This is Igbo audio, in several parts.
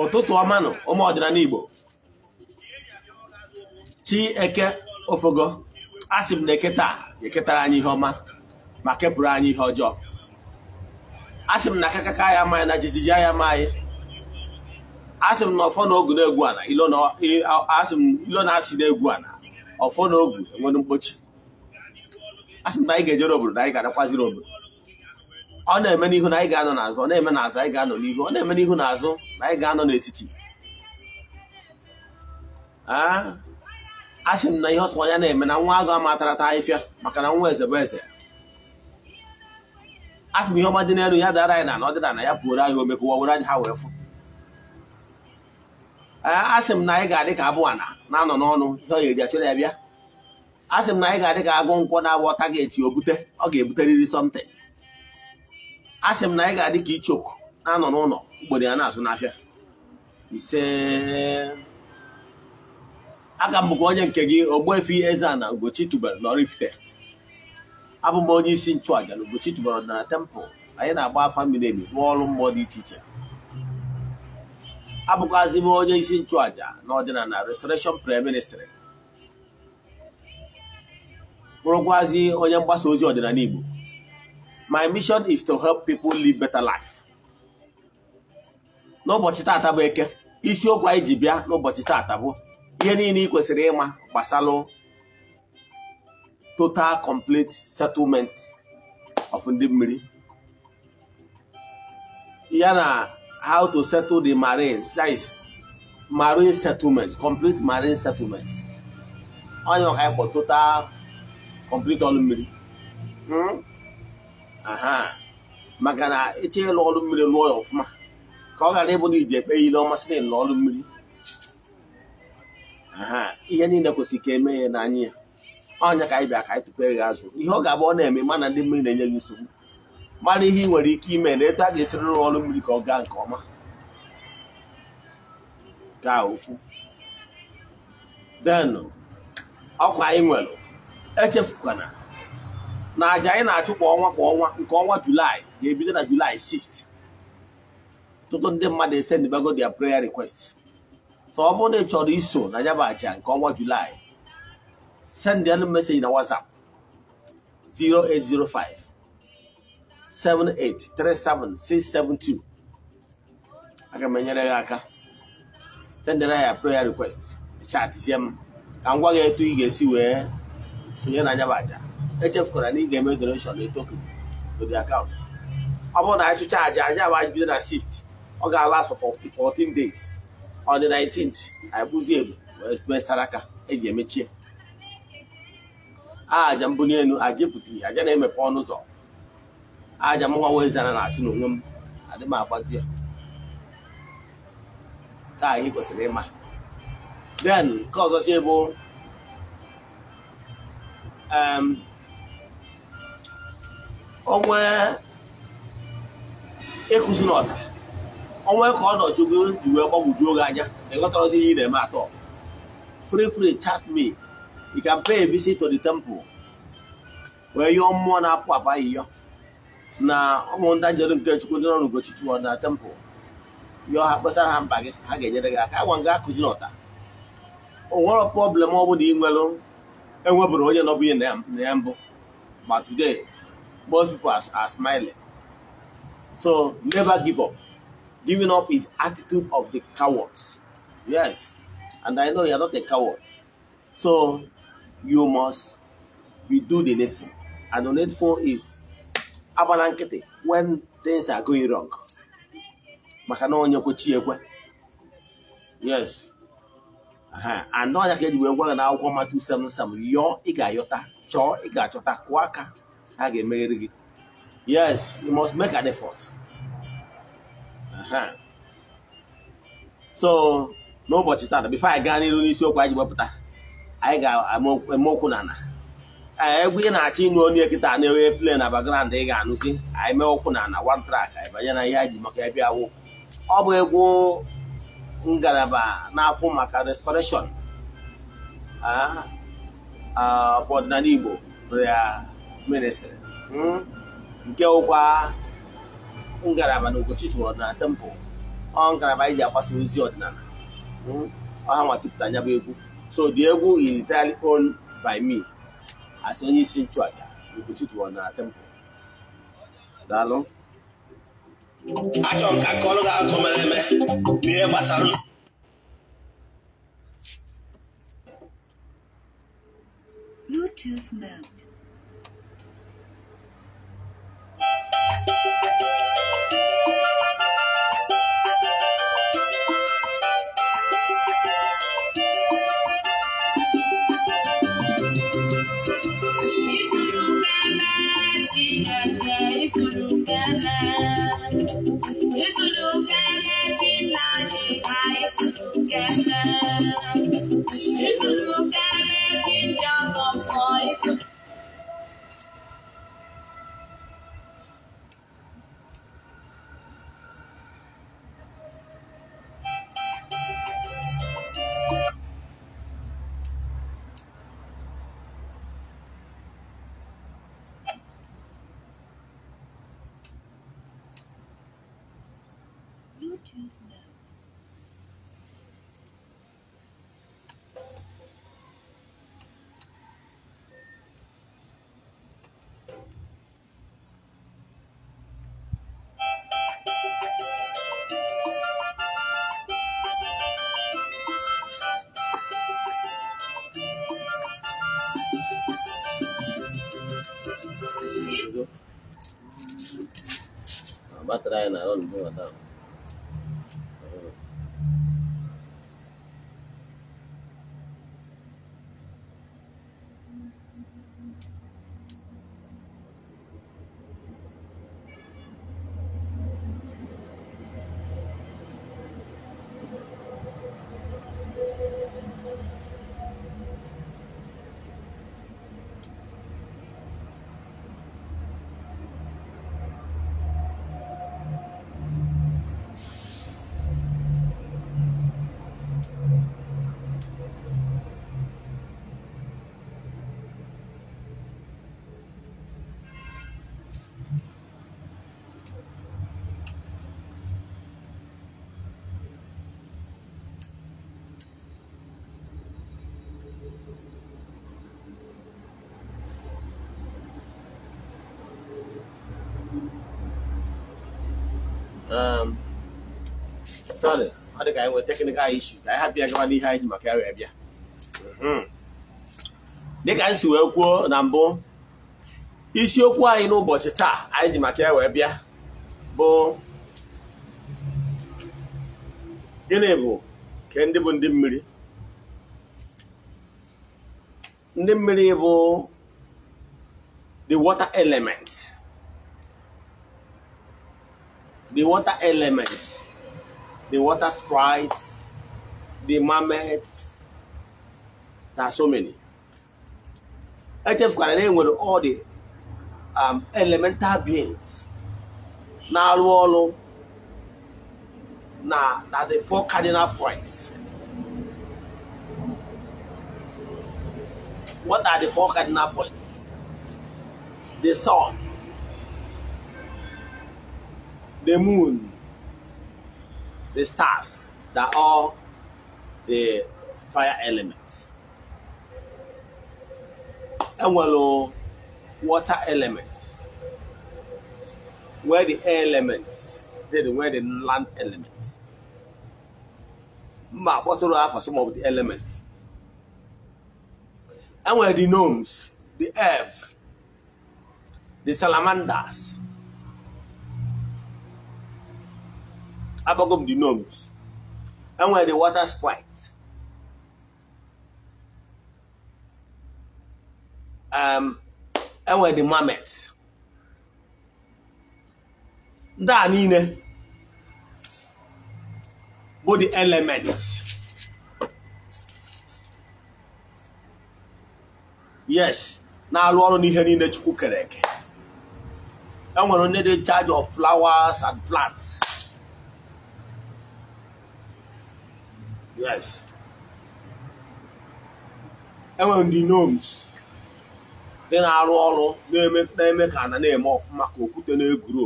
ụtụtụ ọma nụ ụmụ ọdịnala Igbo chi eke ofogo asị m na eke taa eketara anyị ihe ọma ma kepụrụ anyị ihe ọjọọ asị m na akakaka ya amaghị na jijiji anya amaghị asị m na ọfọ na ogu na-egwu ana ilo na-asị na-egwu ala ọfọ na ogu enwere mkpochi asị m na anyị ga-ejere obodo na anyị ga-anakwaziri obodo ọ na-eme n'ihu na anyị ga-anọ n'azụ ọ na-eme n'azụ anyị ga-anọ n'ihu ọ na-eme n'ihu azụ na anyị ga-anọ n'etiti a sị m na ihe ọsọ ya na-eme na nwa agụ taa ahịfịa maka na nwa eze bụ eze a sị m ihe ọma dị n'elu ya dara anyị na na ọdịnala ya pụoro anyị omekụwa were anyị ha wee fụ a sị m na anyị ga-adị ka abụọ na na-anọ n'ọnụ ihe ọ ga-eji ya bịa a sị m na anyị ga-adị ka agụ nkwọ na-agwọ target o bute ọ ga-ebuterịrị something a sị m na anyị ga-adị ka ichoku na-anọ n'ụlọ mgbede ya na-azụ n'afịa ise aga m bụkwa onye nke gị ogbefi eze na Ugochi tubelu n'Oraifite abụ m onye isi nchụaja na ugbochi tubelu na tempụl anyị na-agba afa mmiri emi rụọ ọrụ mmụọ dị iche iche abụkwazị m onye isi nchụaja na ọdịnala Restoration Prayer Ministry bụrụkwazị onye mgbasa ozi ọdịnala Igbo My mission is to help people live better life. N'ụbọchị taata bụ eke isiokwu anyị ji bịa n'ụbọchị taata bụ ihe niile ị kwesịrị ịma gbasalụ total complete settlement of ndị mmiri ya na how to settle the marines that is marine settlement complete marine settlement onye ọka ịkpọ total complete ọlụ mmiri. Hmm? maka na ịchọghị ịlụ ọrụ mmiri lụọ ya ọfụma ka ọ ghara ịbụ na iji ekpe ile ọmasị na ịlụ ọrụ mmiri ihe niile kwesịrị ka eme ya n'anya ya ọnya ka anyị bịa ka anyị tụpere ya azụ ihe ọ ga-abụ ọ na-eme mana ndị mmiri na-enye gị nsogbu mara ihe ị nwere ike ime na etu a ga-esiri rụọ ọrụ mmiri ka ọ gaa nke ọma ka ofu denụ ọkwa anyị nwere echefukwana na aja anyị na-achụ kwa ọnwa kwa ọnwa nke ọnwa julaị ga-ebido na julaị 6 tụtụ ndị mmadụ bago their prayer request so ọ bụrụ na ị chọrọ iso na ya nke ọnwa julaị send them message na whatsapp 0805 7837672 aga m enyere gị aka sendere ya prayer request chat sie m ka m gwa gị etu ị ga-esi wee sonye na ya echefukwara na ị ga-eme donation na token to the account ọ bụrụ na anyị chụcha aja aja bụ bido na 6 ọ ga-alas for 14 days on the 19th anyị bụzi ebu wee saraka eji emechie aja mbuli elu aja ebutighi aja na-emepe ọnụ ụzọ aja mụnwa wezana na-achụ n'onwe m adị m agbadi ya ka anyị kwesịrị ịma then nke ọzọzie bụ um, ọnwa ekụzi na ọnwa ka ọ ji wee gbagwoju oge anya na ịghọtarazi ihe ị na-eme atọ fri fri chat me you can pay a to the temple wee yọọ mmụọ na-apụ apụ ahịhịọ na ụmụ ndị nke chukwu ndị nọ n'ugochi na temple yọọ ha kpesara ha mba gị ha ga-enyere gị aka agwa nga akụzi na ọda o nwere problem ọ bụla ị nwere enwebụrụ onye nọbụ ihe na ya mbụ ma today most people are, are smiling. So never give up. Giving up is attitude of the cowards. Yes, and I know you are not a coward. So you must you do the needful. And the needful is abalankete when things are going wrong. Maka na onye kwechi ekwe. Yes. and now ka eji wee gwa gị na akwụkwọ Matu 7 7 yọọ ị ga-ayọta chọọ ị ga-achọta kụọ ha ga-emegheri gị yes you must make an effort so n'ụbọchị taa, before anyị gaa n'iru n'isiokwu anyị ji anyị ga-eme okwu na eh, egwu ị na-achọ ịnụ onye kịta na-enwe play na background ị ga-anụzi anyị mee okwu na ana one track anyị banye na ihe anyị ji maka ebe awụ ọ bụ egwu ngalaba n'afọ maka restoration ah, ah, ọdịnala Igbo ministry nke ụkwa ngalaba na Ugochitwu ọdịnala temple ọ ngalaba anyị e ji agbasa ozi ọdịnala ọha nwa tụpụta anya bụ egwu so the egwu is entirely on by me as onye isi nchụaja Ugochitwu ọdịnala temple daalụ achọrọ m ka akọrọ gị akụkọ mere eme gbasara Bluetooth mode. Ba't tayo na ron? Bumatang. I ka anyị maka ya wee bịa dịka si wee kwuo na mbụ isiokwu anyị n'ụbọchị taa anyị ji maka ya wee bịa bụ ndị mmiri ndị mmiri bụ the water element the water elements the water sprites, the mammoths There are so many. Echefukwana na enwere all the um, elemental beings na-arụ ọrụ na na the four cardinal points. What are the four cardinal points? The sun, the moon. the stars that are the fire elements. element enwere water elements. where the air elements did where the land element mba kpọtụrụ afọ some of the elements enwere the gnomes the earth the salamanders abagom the gnomes and where the water sprite um and where the marmots ndị a niile bụ the elements yes na-arụ ọrụ n'ihe niile chukwu kere eke enwere onye dị charge of flowers and plants yes enwere ndị gnomes ndị na-arụ ọrụ na-eme ka ana na-eme ọfụma ka okwute na-egwuru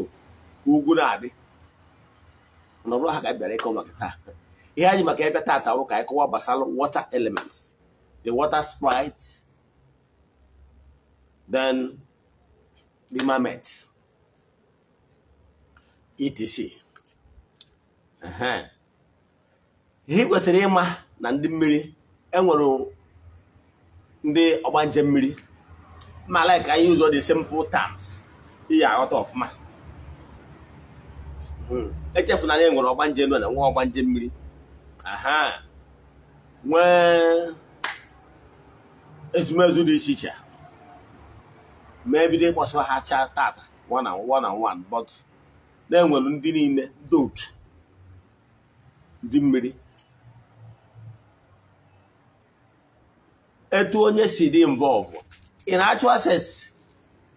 ugwu na-adị nọrọ ha ka bịara ịkọ maka taa ihe anyị maka ebe taata ka anyị kọwa gbasara water elements the water sprite then the etc. Uh-huh. ihe kwesịrị ịma na ndị mmiri enwere ndị ọgbanje mmiri ma like anyị ụzọ dị simple terms ihe aghọta ọfụma hmm. echefu na e nwere ọgbanje nọ na nwa ọgbanje mmiri aha nwee ezumezu dị iche iche ma ebido ịkpọsịwa ha chaa tata one and one but na-enwere ndị niile ndị ndị mmiri etu onye si dị involved in actual sense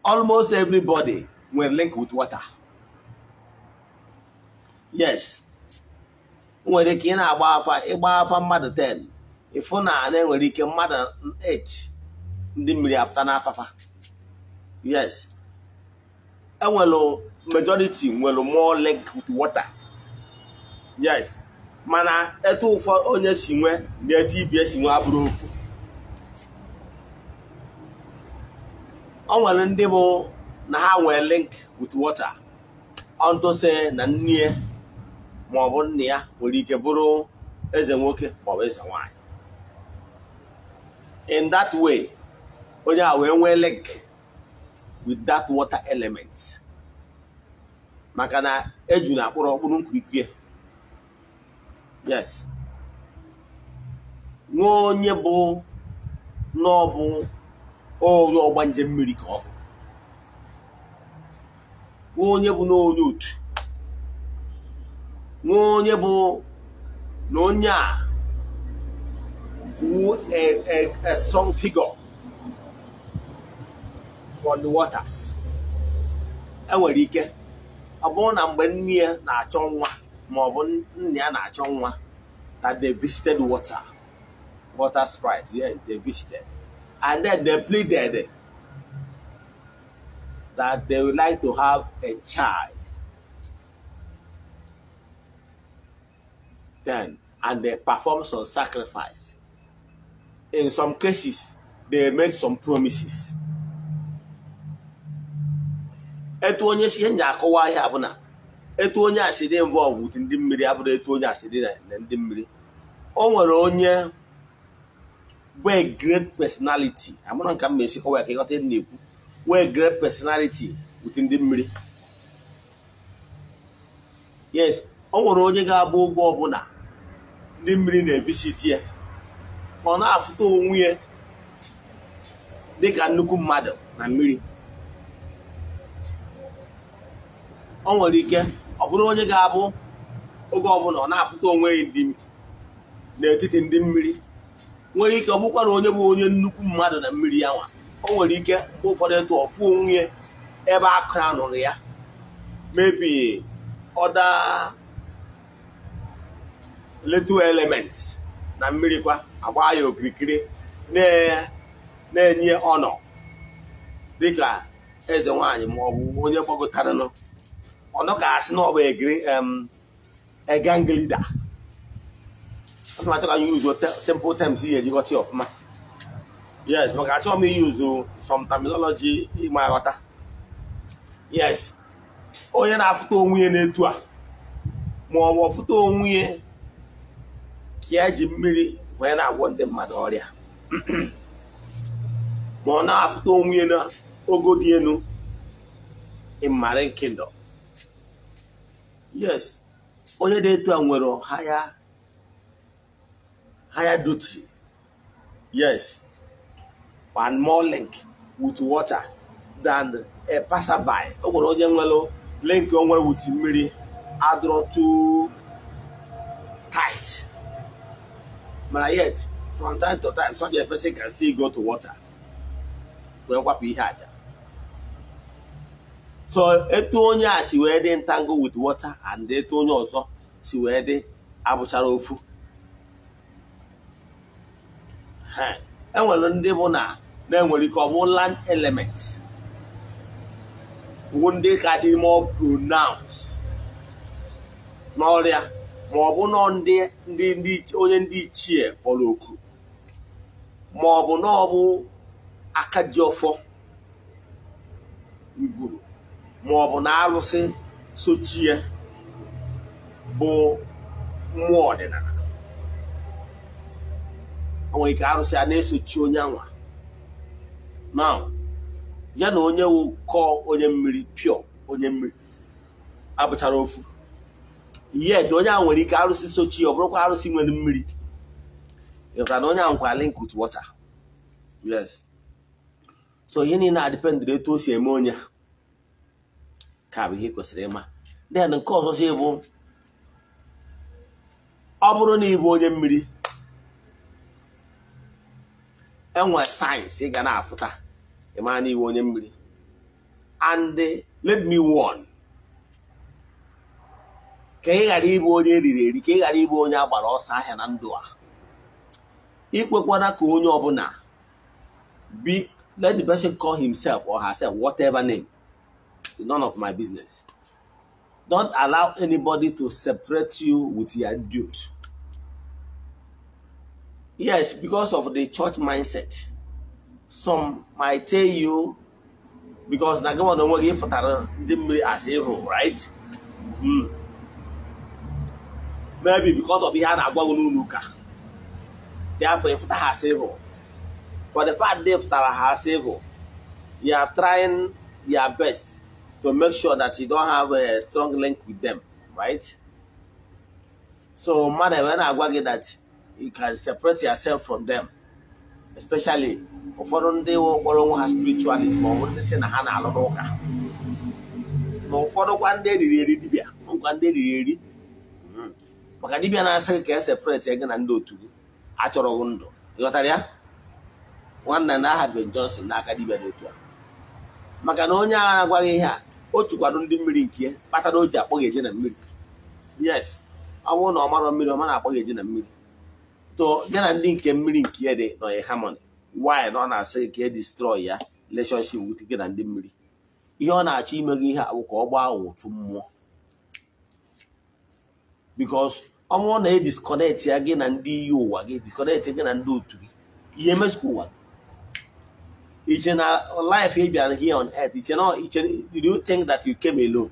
almost everybody nwere link with water yes nwere ike ị na-agba afa ịgba afa mmadụ 10 ịfụ na na-enwere ike mmadụ 8 ndị mmiri apụta n'afafa yes enwelu majority nwere more link with water yes mana etu ụfọdụ onye si nwe na etu ibi si nwe abụrụ ofu ọ nwere ndị bụ na ha wee link with water ọntụse na nne ya maọbụ nna ya nwere ike bụrụ eze nwoke maọbụ eze nwanyị in that way onye a wee nwee link with that water element maka na eju na akpụrụ ọkpụrụ nkirikiri yes nwee onye bụ n'ọbụ onye ọgba njem mmiri ka ọ bụ onye bụ na onye otu nwa onye bụ na onye a wụ a strong figure for the waters enwere ike ọ bụrụ na mgbe nne ya na-achọ nwa ma ọ bụ nna ya na-achọ nwa na they visited water water sprite yeah they visited and then they pleaded that they would like to have a child. Then, and they performed some sacrifice. In some cases, they made some promises. etu onye si ihe nye akọwa ihe na etu onye asị dị mbụ ọgwụ ndị mmiri abụrụ etu onye asị dị na ndị mmiri o nwere onye wee great personality amụrụ nka m ma esi kọwa ka ịghọta ihe na-ekwu wee great personality wute ndị mmiri yes ọ nwere onye ga-abụ ụgwọ ọbụla ndị mmiri na-ebisiti ya ọ na-afụta onwe ya dịka nnukwu mmadụ na mmiri ọ nwere ike ọ bụrụ onye ga-abụ oge ọbụla ọ na-afụta onwe ya n'etiti ndị mmiri nwere ike ọ na onye bụ onye nnukwu mmadụ na mmiri ya nwa o nwere ike ụfọdụ etu ọfụ onwe ebe akụra nụrụ ya mebi ọda little element na mmiri kwa agba ya okirikiri na-enye ọnọ dịka eze nwanyị ma ọ bụ onye gbagotara nọ ọnọ ka asị na ọ bụ eganglida asị m achọ ka anyị use simple terms ihe eji ghọta ọfụma yes maka achọghị m use oh, some terminology ịma aghọta yes onye na-afụta onwe ya n'etu a ma ọ bụ ọfụta onwe ka ya ji mmiri wee na-agwọ ndị mmadụ ọrịa ma ọ na-afụta onwe na ogo dị elu in nke uh, oh, kingdom yes onye na etu a nwere haya higher duty. Yes. And more link with water than a passerby. ọ gwara onye nwere link ọ nwere with mmiri adọrọ too tight. Mana yet from time to time such a person can still go to water wee kwapụ ihe aja. so etu onye a si wee dị ntango with water and etu onye ọzọ si wee dị abụchara ofu enwere eh, e ndị bụ na na-enwere ike ọ bụ land element bụ ndị ka dị more pronounced n'ọrịa ma ọ bụ nọ onye ndị ichie kpọrọ oku ma ọ bụ na ọ bụ aka ji ọfọ mgburu ma ọ bụ na arụsị sochie bụ mmụọ ọdịnala o nwere ike arụsị a na-esochi onye anwa na ya na onye wụkọ onye mmiri pịọ onye mmiri abụchara ofu yet onye ahụ nwere ike arụsị sochi ọ bụrụkwa arụsị nwere mmiri ịghọtara na onye ahụ kwa link ut water yes so ihe niile adipendịrị etu o si eme onye ka bụ ihe kwesịrị ịma then nke ọzọ si bụ ọ bụrụ na ị bụ onye mmiri enwe sayensị ị ga na-afụta ịmara na onye mmiri and let me warn ka ị ghara ịbụ onye eriri eri ka ị ghara ịbụ onye agbara ọsọ ahịa na ndụ a ikwekwana ka onye ọbụla let the person call himself or herself whatever name is none of my business don't allow anybody to separate you with your dude Yes, because of the church mindset. Some might tell you because na gịnwa na onwe gị ndị mmiri as evil, right? Mm. Maybe because of ihe a na-agwa gị n'ụlọ ụka. Therefore, ịfụta ha as For the fact they fụtara ha as evil, you are trying your best to make sure that you don't have a strong link with them, right? So mmadụ ebe na-agwa gị that you can separate yourself from them especially ụfọdụ ndị kpọrọ nwa ha spiritualism ma ọ bụ ndị si na ha na-alụrụ ụka ma ụfọdụ kwa ndị eriri eri dibịa ngwa ndị eriri eri hmm. maka dibịa na-asị ka e ege na ndị otu gị achọrọ gị ndụ ịghọtara ya nwanna na aha Ben Johnson n'aka dibịa dị a maka na onye agha na-agwaghị ihe a o chukwado ndị mmiri nke ya kpatara o ji akpọghị eje na mmiri yes ọ bụrụ na ọ marọ mmiri ọ ma na-akpọ eje na mmiri to ya na ndị nke mmiri nke ya dị nọnye harmony why na ọ na-asị ka e destroy ya relationship with gị na ndị mmiri ihe ọ na-achọ ime gị ihe abụ ka ọ gbaa ụtụ mmụọ because ọ bụrụ na e disconnect ya gị na ndị iyi ụwa gị disconnect gị na ndị otu gị ihe emesịkwa ụwa iche na life ị bịara here on earth iche na iche do you think that you came alone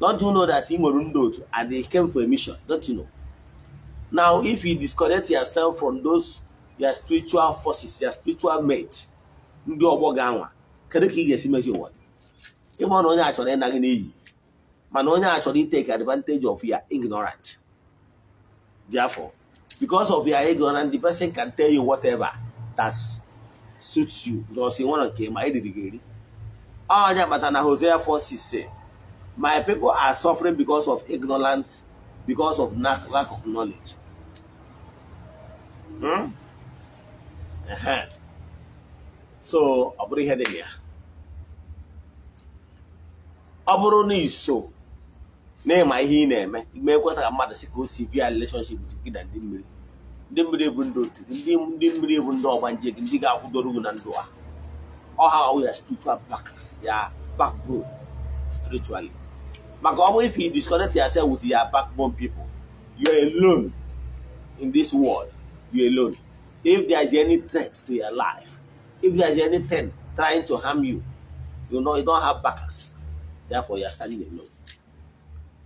don't you know that ị nwere ndị otu and they came for a mission don't you know Now, if you disconnect yourself from those your spiritual forces, your spiritual mate, ndị ọgbọ ga-anwa kedu ka ị ga-esi mezi ụwa ịma na onye achọrọ ịna gị n'iyi mana onye a chọrọ iteke advantage of your ignorant therefore because of your ignorant the person can tell you whatever that suits you jos nwere nke ma eriri gị eri onye akpata na Hosea 4:6 my people are suffering because of ignorance because of lack of knowledge Hmm? so ọ bụrụ ihe dị ya ọ bụrụ na iso na ịma ihe ị na-eme ime ekweta ka mmadụ si ka o si bịa relationship gị na ndị mmiri ndị mmiri bụ ndị otu ndị mmiri bụ ndị ọgbanje gị ndị ga-akwụdoro gị na ndụ a ọha ọwụ ya spiritual back ya backbone spiritually maka ọ bụ if you disconnect yourself with your backbone people you are alone in this world you alone. If there is any threat to your life, if there is anything trying to harm you, you know you don't have backers. Therefore, you are standing alone.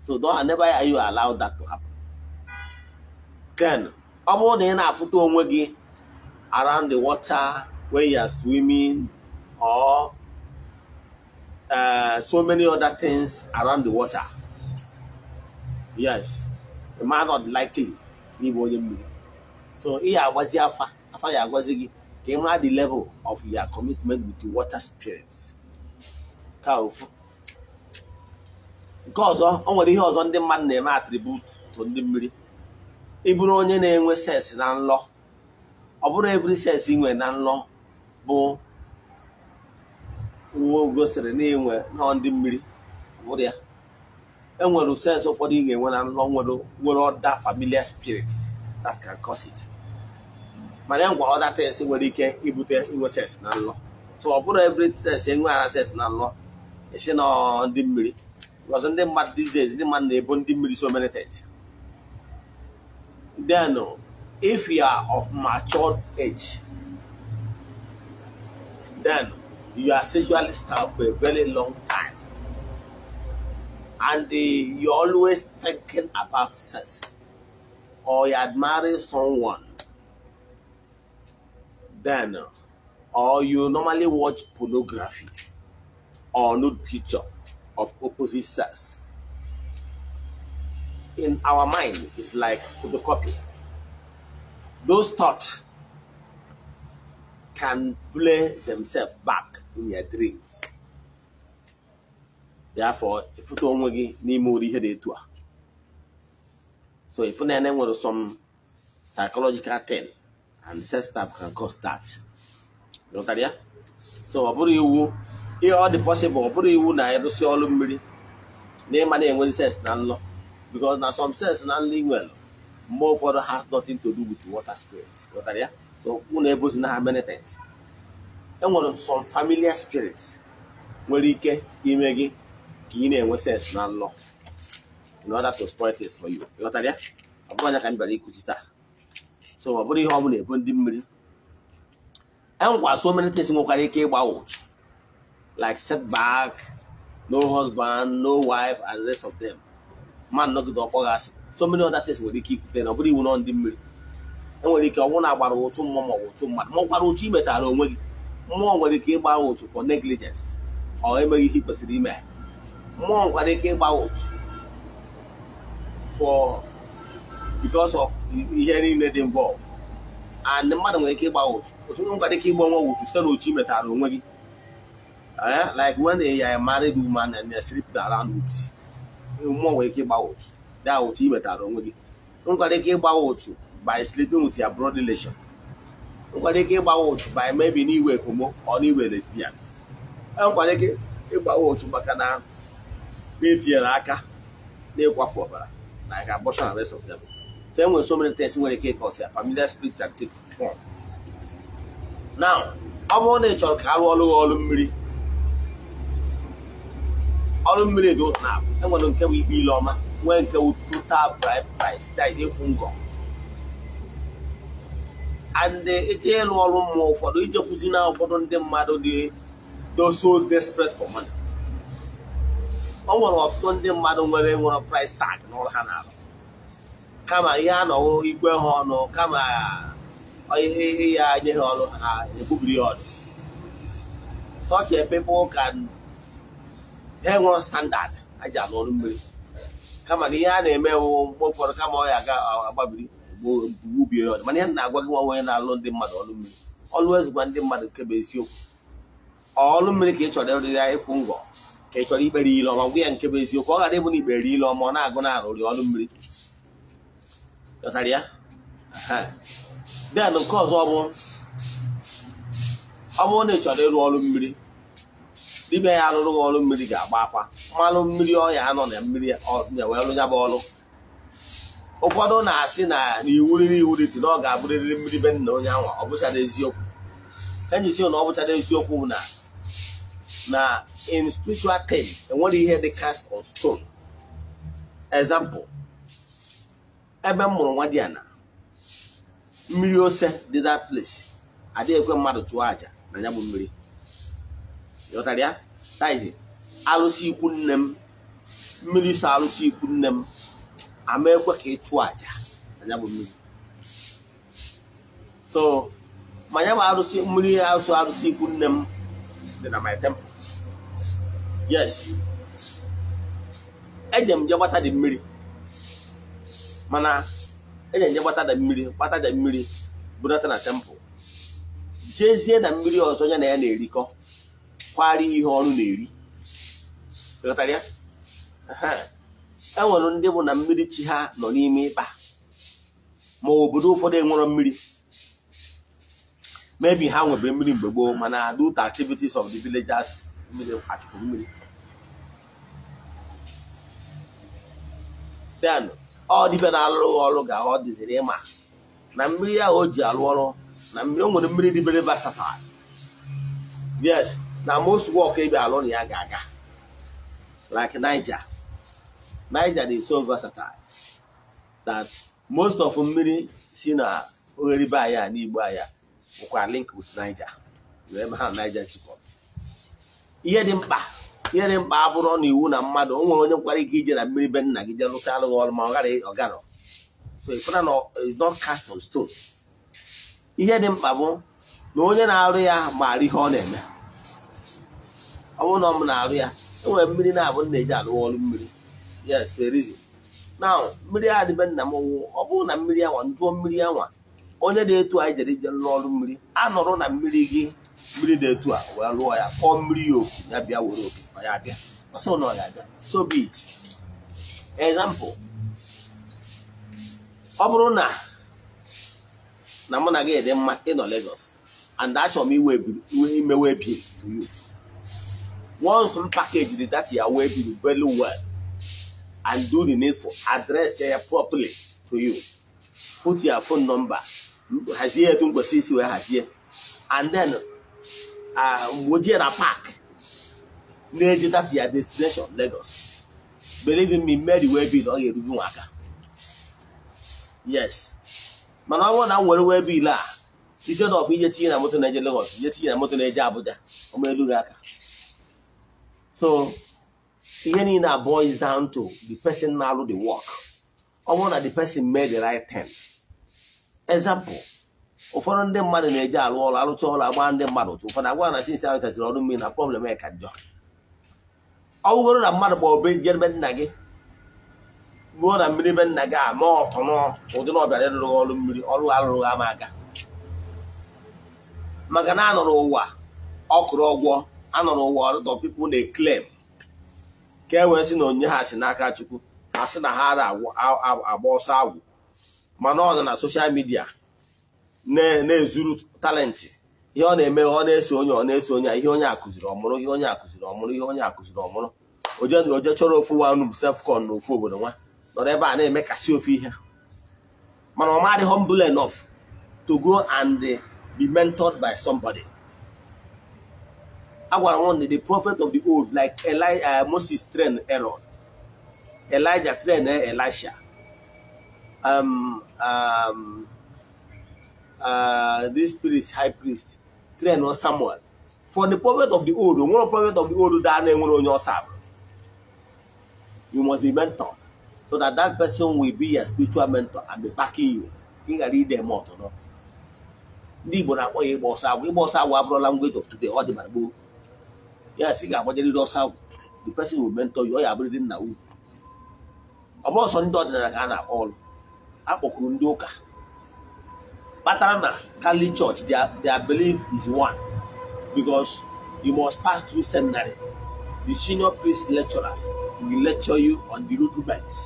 So don't never are you allowed that to happen. Then, ọ i around the water when you are swimming or uh, so many other things around the water. Yes, the man not likely leave only so ị ya agbazi afa afa ya agwazi gị ka ị mara the level of your commitment with the water spirits ka ofu nke ọzọ ọ nwere ihe ọzọ ndị mmadụ na-eme atribut to ndị mmiri ịbụrụ onye na-enwe sens na nlọ ọ bụrụ ebiri sens inwe na nlọ bụ uwe gosiri na inwe nọ ndị mmiri bụrụ ya enwere sens ụfọdụ ị ga-enwe na nlọ nwere ọda familiar spirits that can cause it ma na ngwa other things nwere ike ibute inwe sex na nlọ so ọ bụrụ every sex enwe ara sex na nlọ esi na ndị mmiri because ndị mmadụ these days ndị mmadụ na-ebo ndị mmiri so many things then if you are of matured age then you are sexually starved for a very long time and uh, eh, you're always thinking about sex. or you had someone, then, or you normally watch pornography or nude picture of opposite sex. In our mind, it's like photocopy. Those thoughts can play themselves back in your dreams. Therefore, if you don't want to, you need more So if you know some psychological thing, and sex stuff can cause that. You know So ọ bụrụ iwu ihe ọ dị possible ọ bụrụ iwu na-erụsi ọrụ mmiri na ịma na-enwe sex na nlọ because na some sex na nlọ inwere mgbe ụfọdụ has nothing to do with water spirits. You know so ụnụ ebozi na ha many things. enwere some familiar spirits nwere ike ime gị ka ị na-enwe sex na in order to spoil things for you you ya that bụghị anya ka so ọ bụrụ ihe ọ ebu ndị mmiri engwa so many things nwekwara ike ịgba ụchụ like setback no husband no wife and the rest of them man nọgide ọkpọ gị asị so many other things nwere ike ikwute na ọ bụrụ iwu ndị mmiri enwere ike na-agbara ụchụ mmụọ ma ọ mmadụ ma ọ gwara onwe gị mmụọ nwere ike ịgba ụchụ for negligence or emeghị kwesịrị ime mmụọ nwekwara ike ịgba for because of ihe niile dị involved and mmadụ nwere ike ịgba ụtụ. otu onye nwere ike ịgba nwa ụchụ site na ochi metara onwe gị like when they a married woman and they sleep around with mmụọ nwere ike ịgba ụchụ da ụchụ imetara onwe gị nwere ike ịgba ụtụ by sleeping with your broad relation nwere ike ịgba ụtụ by maybe n'iwe homo or n'iwe lesbian nwere ike ịgba ụtụ maka na etinyere aka n'ịkwafu ọbara like abortion and rest of them. So enwere so many things nwere ike ịkọsi ya familiar spirit take form. Now, ọ bụrụ na ị chọrọ ka a rụọ ọrụ ọrụ mmiri ọrụ mmiri dị otu na-abụ nke bụ ikpe ile ọma nwee nke bụ total bribe price that is ịkwụ ngọ and ịlụ ọrụ mmụọ ụfọdụ ijekwuzi na ụfọdụ ndị mmadụ dị so desperate for money o nwere ọtụtụ ndị mmadụ nwere nwere price tag n'ụlọ ha na-arụ kama ihe a nọwụ igwe ha ọnụ kama ihe ya nye ha ọrụ ha ebubiri ya ọnụ such a people can ha nwere standard aja ji ọrụ mmiri kama na ihe a na-eme wụ mgbe kama ọ ya agbabiri gbubie ya ọnụ mana ihe na-agwa gị nwa onye na-alụ ndị mmadụ ọrụ mmiri ọlụ ezigwa ndị mmadụ kebe isiokwu ọrụ mmiri ka ị chọrọ ịrụ ya ịkwụ ngọ ị chọrọ ikpere ile ọma gwa ya nke bụ eziokwu ọ ghara ịbụ na ikpere ile ọma ọ na-agụ na-arụrị ọrụ mmiri ya den nke ọzọ ọ bụrụ na ị chọrọ ịrụ ọrụ mmiri dibịa ya arụrụ gị ọrụ mmiri ga-agba akwa mmanụ mmiri ọya anọ na mmiri wee rụ ya bụ ọrụ ụfọdụ na-asị na n'iwu riri iwu dị na ọ ga-abụrịrị mmiri be nna onye anwa ọ bụchara eziokwu enyi si na ọ bụchara eziokwu bụ na na in spiritual term enwere ihe dị cast on stone example ebe m mụrụ nwa diana mmiri ose dị that place adịghị ekwe mmadụ chụọ aja na ya bụ mmiri ịghọtara ya taizi arụsị ikwu nne m mmiri so arụsị ikwu nne m ama ekwe ka ị chụọ aja na ya bụ mmiri so ma ya bụ alụsị mmiri alụsị alụsị ikwu nne m dị na my temple yes eje m je gbata dị mmiri mana eje m gbata dị mmiri gbata dị mmiri budata na tempụl jezie na mmiri ọzọ ya na ya na-erikọ kwari ihe ọrụ na-eri e enwere ndị bụ na mmiri chi ha nọ n'ime ịkpa ma obodo ụfọdụ enwere mmiri mebi ha nwebe mmiri mgbe gboo mana do the activities of the villagers mmiri achụpụ mmiri bịanụ ọ dịbe na-alụghị ọrụ ga ọ dịziri ịma na mmiri ahụ o ji alụ ọrụ na mmiri o nwere mmiri dịbere versatile yes na most work ebe alụ na ya ga-aga like Niger Niger dị so versatile that most of mmiri si na ogheribe anya n'igbo anya bụkwa link with Niger ebe ha Niger jikọrọ ihe dị mkpa ihe dị mkpa abụrụ na iwu na mmadụ o nwere onye nkwara ike ije na mmiri be nna gị jee lụta alụghị ọrụ ma ọ gara ọgarọ so ịfụna na not cast on stone ihe dị mkpa bụ na onye na-arụ ya maara ihe ọ na-eme ọ bụrụ na ọ m na-arụ ya e nwere mmiri na-abụ nna eji alụghị ọrụ mmiri yes there is na mmiri adịbe nna m ọ bụrụ na mmiri anwa njụọ mmiri anwa onye na-etu anyị jere ije lụọ ọrụ mmiri a nọrọ na mmiri gị mmiri na-etu a wee lụọ ya kpọọ mmiri ya oku ya bịa were oku ọ ya bịa ọsọ na ọ ya bịa so be it example ọ bụrụ na na mụ na gị dị mma ịnọ Lagos and achọrọ m iwe iwe imewe bill to you once m package dat ya wee bill very well and do the need for address ya properly to you put your phone number hazie etu mkpesị isi wee hazie and then uh, mgbe o na park na-eje that ya destination Lagos believe in me Mary wee biil ọ ga-erugo nwa aka yes mana ọ bụrụ na nwere were wee biil a ije of ije tinye na moto na-eje Lagos ije tinye na moto na-eje Abuja ọma elu gị aka so ihe niile a is down to the person na-alụ the work ọ bụrụ na the person made the right turn. ezampụl ụfọdụ ndị mmadụ na-eji alụ ọrụ arụcha ọrụ agba ndị mmadụ ụtụ ụfọdụ agwa na sinsi ahụ chachiri ọrụ mmiri na prọblem e ka njọ ọ na mmadụ kpọọ obe jere be nna gị ruo na mmiri be nna gị ama ọtọ nọ ụdị na ọbịara ịrụghị ọrụ mmiri ọrụ ha ama aga maka na anọrọ ụwa ọkụrụ ọgwọ anọrọ ụwa ọrụtọ pipụ na-eklem ka e wee sị na onye ha si n'aka chukwu ha sị na ha agba ọsọ agwụ mana ọ nọ na soshal midia na-ezuru talenti ihe ọ na-eme ọ na-eso onye ọ na-eso onye ihe onye akụziri ọmụrụ ihe onye akụziri ọmụrụ ihe onye akụziri ọmụrụ oje chọrọ ofu wanub sefcon na ofu obodo nwa nọrọ ebe a na-eme kasị ofu ihe mana ọ madị humble enough to go and be mentored by somebody a gwara nwanne the prophet of the old like uh, Moses trained Aaron Elijah trained Elisha um, um, uh, this priest, high priest, train on Samuel. For the prophet of the old, one prophet of the old that name on your serve. You must be mentor. So that that person will be your spiritual mentor and be backing you. Think I read them out or not. Ndị Igbo na-akpọ ya ịgba ọsọ agwụ ịgba ọsọ agwụ abụrụ language of today ọ dị mara gboo ya si ga-agbanyerịrị the person will mentor you ọ ya abụrịrị nna unu ọ bụrụ ọsọ ndị ọdịnala ka a na-akpọ ọrụ akpọkwuru ndị ụka kpatara na kali Church their belief is one because you must pass through seminary the senior priest lecturers will lecture you on the rudiments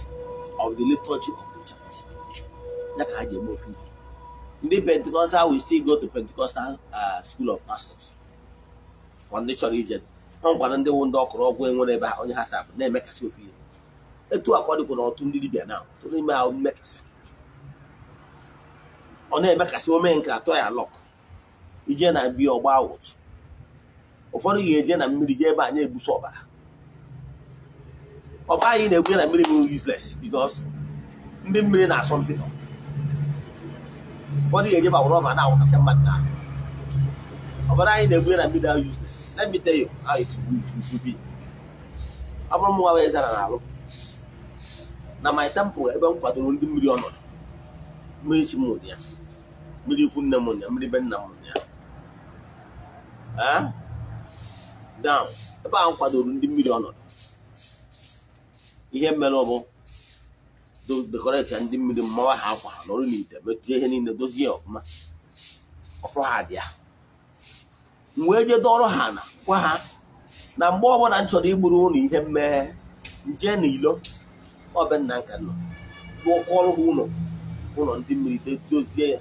of the liturgy of the church ya ka ha ji eme ofe ndị Pentecostal will still go to Pentecostal uh, school of pastors for ndị chọrọ ije ọ gwara ndị wụ ndị ọkụrụ ọgwụ enwere ebe onye ha sapụ na-emekasị ofe ihe etu akwa ọtụ ndị dibịa na tụrụ ime ahụ mmekasị ọ na-eme kasị omee nke atọ ya lọk ije na biya ọgba ụtụ ụfọdụ ga-eje na mmiri jee ebe anyị egbusi ọbara ọba anyị na-egwu na mmiri bụ useless because ndị mmiri na-asọ mpịtọ ụfọdụ ga-eje gbawara ọba na-awụsasị mmadụ na ọbara anyị na-egwu na mmiri ahụ useless let me tell you how it will be ọ bụrụ m nwa zara na na my temple ebe m kwadoro ndị mmiri ọnọdụ mmiri chi m ya mmiri ikwu nne m ụnyaahụ mmiri be nna m ụnyaahụ eh? down ebe ahụ kwadoro ndị mmiri ọnọdụ ihe mere ọ bụ dekoreta ndị mmiri mmawa ha akwa ha nọrọ n'ite metụta ihe niile dozie ọfụma ọfụ ha dị ya m wee jee dọrọ ha na gwa ha na mgbe ọbụla m chọrọ igburu ụlọ ihe mmeghe nje na ilo ọbe nna nka nọ rụọkwa ọrụ ha ụlọ ụlọ ndị mmiri dozie ya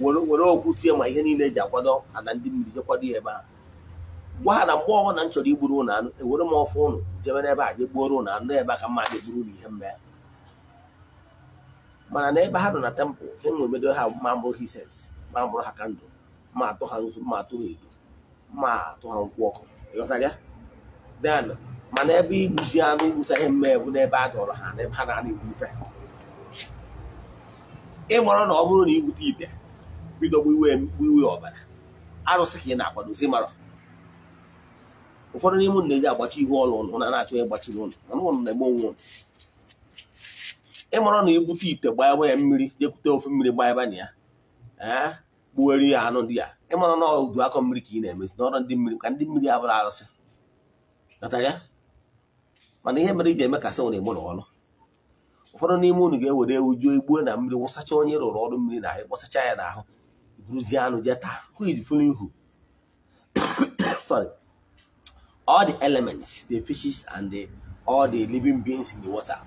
were okwu tie ma ihe niile eji akwado ala ndị mmiri jekwado ya ebe ahụ gwa ha na mgbe ọbụla m chọrọ igburu anụ ewere m ọfụ ụnụ jebe n'ebe a je gbuoro ụnụ anụ ebe a ka mma ga gburu ụnụ ihe mma ya mana n'ebe ha nọ na tempụl enwemedo ha ma mbụ hises ma bụrụ ha kandụl, ma atụ ha nzu ma atụ ha edo ma atụ ha nkwụ ọkụ ịghọtara den mana ebe igbuzi anụ igbuzi ihe mma bụ n'ebe a dọrọ ha n'ebe ha na-ana egbu ife ịmọrọ na ọ bụrụ na igbute ite bido gbiwe gbiwe ọbara arụsị ka ị na-akwadozi mara ụfọdụ n'ime na-eji agbachi ihu ọlụ ụlụ na na-achọ ịgbachi ụlụ mana na-eme onwe ụlụ ịmara na ebute ite gbaaba ya mmiri jekwute ofe mmiri gba na ya ee gbuwere ya anụ ndị ya ịmara na udu akọ mmiri ka ị na-emezi n'ọrụ ndị mmiri ka ndị mmiri abụrụ arụsị natara mana ihe mere iji emekasị nwere ọrụ ụfọdụ n'ime unu ga-ewere ewu juo igbuo na mmiri wụsacha onye rụrụ ọrụ mmiri na ahụ ya n'ahụ buruzie anụ jee taa who is fooling who sorry all the elements the fishes and the all the living beings in the water